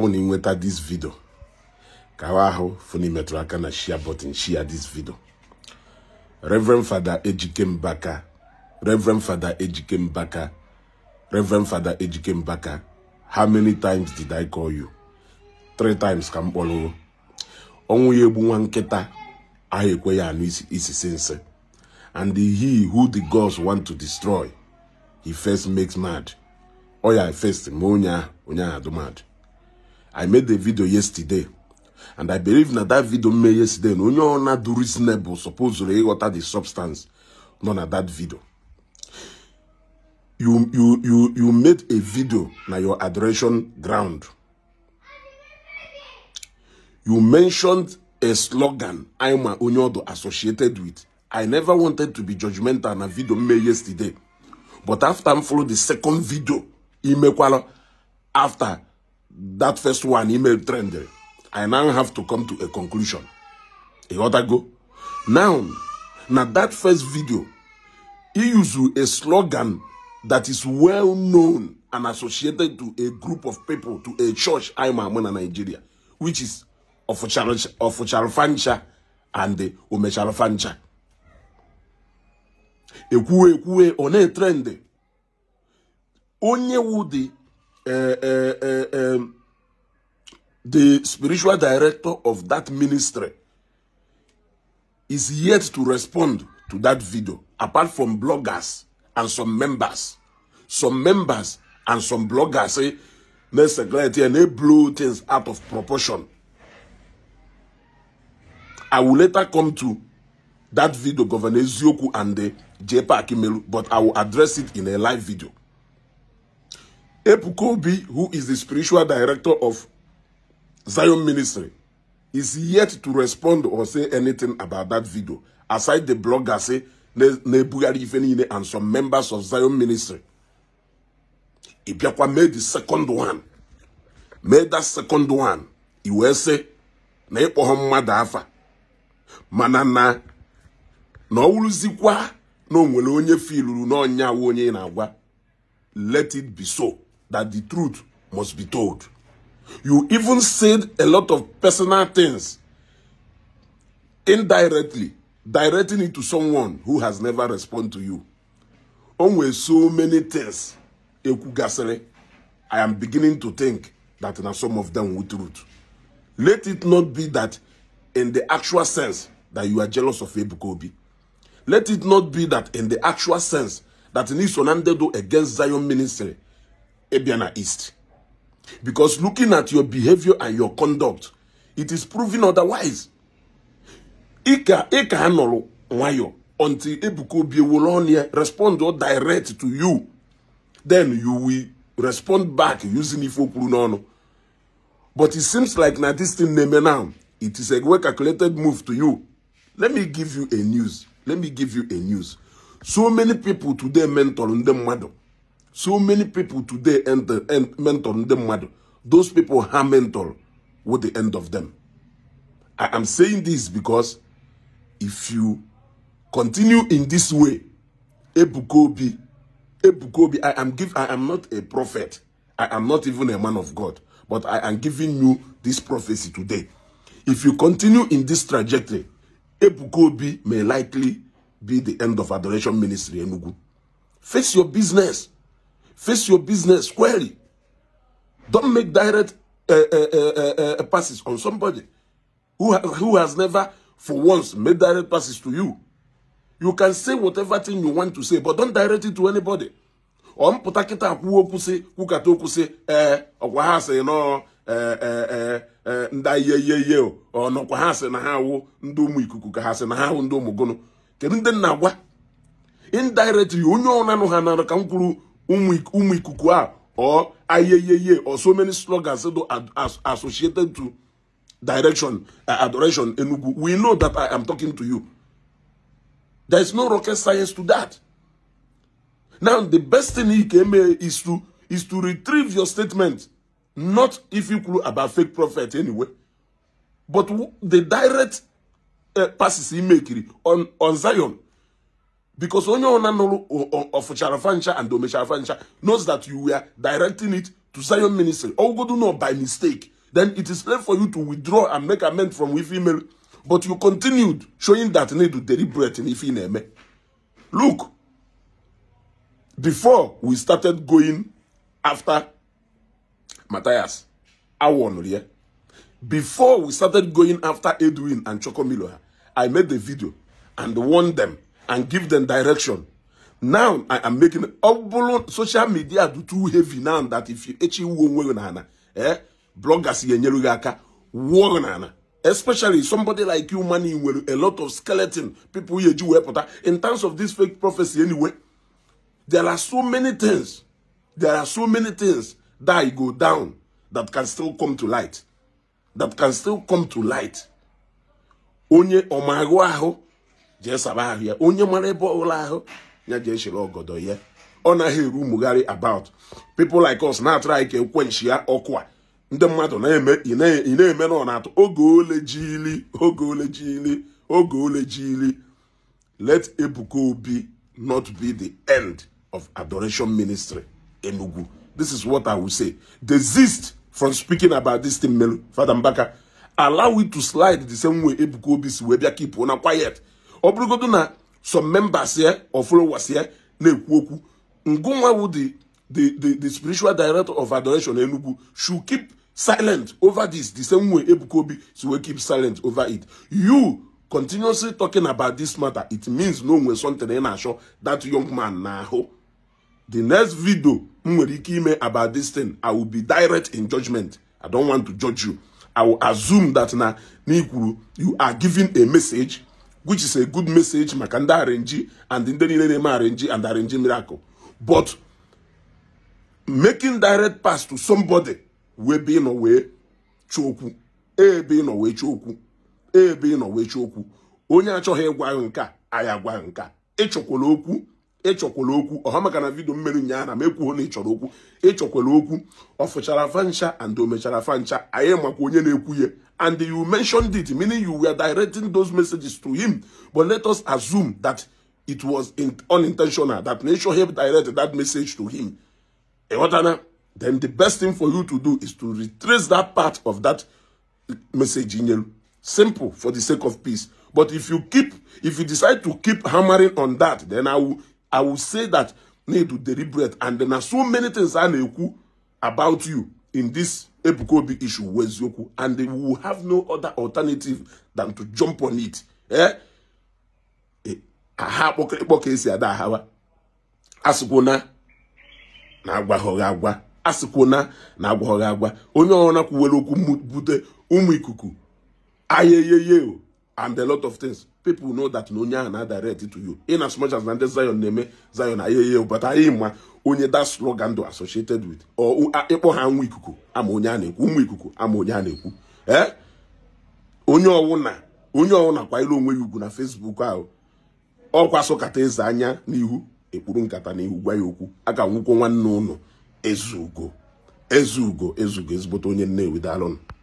ọnwụ na ịnweta dis vidio ka ahụ ahụ funi metụrụ aka na share button share dis vidio Reverend fada Ejike Mbaka Reverend fada Ejike Mbaka Reverend fada Ejike Mbaka how many times did I call you three times ka m kpọrọ ọnwụ ya egbu nwa nkịta ahụ ekwe ya anụ isi nsị and he who the gods want to destroy he first makes mad ọ ya first ma onye ahụ onye ahụ adụ mad I made a video yesterday. And I believe that that video made yesterday. No, no, not reasonable. Supposedly, what are the substance? No, na that video. You, you, you, you made a video na your adoration ground. You mentioned a slogan I'm a Onyodo associated with. I never wanted to be judgmental A video made yesterday. But after I followed the second video, Imekwala, after that first one email trend, I now have to come to a conclusion. A other go? Now, now that first video, he used a slogan that is well known and associated to a group of people, to a church, I'm in Nigeria, which is of Fancha and The Ekwue ekwue on a trend. Onye wudi uh, uh, uh, um, the spiritual director of that ministry is yet to respond to that video, apart from bloggers and some members. Some members and some bloggers say, let's and they blow things out of proportion. I will later come to that video, Governor Zioku and the JPA Akimelu, but I will address it in a live video. Epukobi, who is the spiritual director of Zion Ministry, is yet to respond or say anything about that video, aside the ife niile and some members of Zion Ministry. Ibiakwa made the second one. Made that second one. iwese si na ịkpọ mmadụ afa mana na na ọ wụrụzikwa na onye filuru n'ọnya onye na-agwa let it be so. that the truth must be told. You even said a lot of personal things indirectly, directing it to someone who has never responded to you. Only so many things, I am beginning to think that now some of them were truth. Let it not be that in the actual sense that you are jealous of Ebukobi. Let it not be that in the actual sense that Nisonandedo against Zion ministry Ebiana East. Because looking at your behavior and your conduct, it is proven otherwise. Ika Ika Hanolo Wayo until Ebuko Biwolonia respond or direct to you. Then you will respond back using Ifo Prunono. But it seems like now this thing name now. It is a well calculated move to you. Let me give you a news. Let me give you a news. So many people today mentor on them madam. So many people today end and mentor them mad. Those people are mentor with the end of them. I am saying this because if you continue in this way, Ebukobi, Ebukobi, I am give I am not a prophet. I am not even a man of God, but I am giving you this prophecy today. If you continue in this trajectory, Ebukobi may likely be the end of Adoration Ministry Enugu. Face your business. Face your business squarely. Don't make direct uh, uh, uh, passes on somebody who, ha who has never, for once, made direct passes to you. You can say whatever thing you want to say, but don't direct it to anybody. or mpụta kịta kwuo okwu sị kwukata okwu sị ee eh, ọkwa ha sị eh, eh, nda ndị ihe ihe ihe o ọnọkwa ha sị na ha awụ ndị ụmụ ikuku ka ha sị na ha awụ ndị ụmụ gụnụ kedu ndị na-agwa indirectly onye ọnụ anụ ha ka umu or ayeyeye or so many slogans associated to direction, uh, adoration, enugu. We know that I am talking to you. There is no rocket science to that. Now, the best thing he came is to is to retrieve your statement, not if you clue about fake prophet anyway, but the direct uh, passes he make on on Zion because onye ọna of ọfụchara and omechara fancha knows that you were directing it to Zion ministry ogodo know by mistake then it is left for you to withdraw and make amend from with email but you continued showing that need to deliberate in ife look before we started going after Matthias I you. before we started going after Edwin and Chokomilo I made the video and warned them and give them direction. Now I am making social media do too heavy now that if you actually wuo onwe eh bloggers ga-enyere gị especially somebody like you money a lot of skeleton people eji wee reporter in terms of this fake prophecy anyway there are so many things there are so many things that go down that can still come to light that can still come to light onye omagwa ho. jee saba ahụ ya onye mara ebe ọbụla ahụ ya jee shiri ọgọdọ ya ọ naghị eru umugharị about people like us na-atụrụ anyị ka ya ọkụ a ndị mmadụ ị na-eme na ọ na-atụ oge ole jili oge ole jili oge ole jili let Ebuka Obi not be the end of adoration ministry Enugu this is what I will say desist from speaking about this thing melu Fada Mbaka allow it to slide the same way Ebuka Obi si wee bịa kipụ na quiet ọ na some members ya of followers na-ekwu okwu ngụnwa wu the the spiritual director of adoration Enugu should keep silent over this the same way Ebuka Obi si wee keep silent over it you continuously talking about this matter it means no nwe something ị na-achọ that young man na n'ahụ the next video m nwere ike ime about this thing i will be direct in judgment i don't want to judge you i will assume that na n'ikwuru you are giving a message which is a good message maka ndị arenji and ndị niile na-eme arenji and arenji miracle but making direct pass to somebody wee be ịnọ wee chụ okwu ebe ịnọ wee chụ okwu ebe ịnọ wee okwu onye achọghị ịgwa ahụ nke a anyị agwa nke a ịchọkwala okwu ịchọkwala okwu ọha maka na vidio mmeri nyaa na m ekwughị na ịchọrọ okwu ịchọkwala okwu ọ fụchara fancha and omechara fancha anyị makwa onye na-ekwu ihe. and you mentioned it, meaning you were directing those messages to him. But let us assume that it was unintentional, that nature helped direct that message to him. Eh, then the best thing for you to do is to retrace that part of that message in you. Simple, for the sake of peace. But if you keep, if you decide to keep hammering on that, then I will, I will say that need to deliberate. And there are so many things I know about you in this Ebuka Obi issue wụ eziokwu and we will have no other alternative than to jump on it eh? eh, aha akpọkịrịkpọ ka esi ada ahawa asịkwụna na agwaghị agwa asịkwụna na agwa onye ọbụla kwuwere okwu bute ụmụ ikuku ayeyeye and a lot of things people know that na onye ahụ na direct to you in as much as na ndị Zion na-eme Zion ayeye but anyị ma onye that slogan do associated with ịkpọ ha nwa ikuku ama onye a na-ekwu ụmụ ikuku ama onye a na-ekwu ee eh? onye ọwụna onye ọwụna kwanyere onwe ya ugwu na Facebook ahụ ọkwa sokata eze anya n'ihu ekpuru nkata n'ihu gwa ya okwu a ga nwụkwo nwanne ụlọ ezugo ezugo ezugo ezigbote onye nne daalụnụ